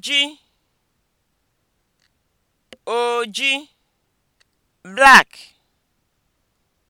oji oji black